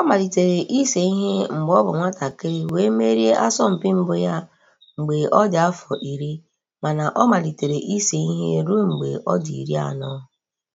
Ọ malitere ise ihe mgbe ọ bụ nwatakịrị wee merie asọmpi mbụ ya mgbe ọ dị afọ iri, mana ọ malitere ise ihe ruo mgbe ọ dị iri anọ.